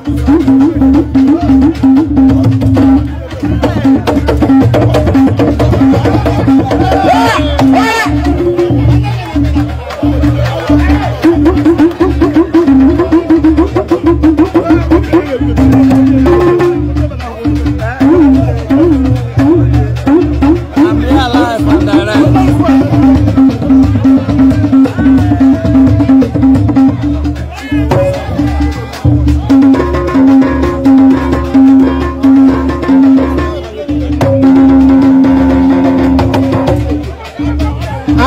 Thank you.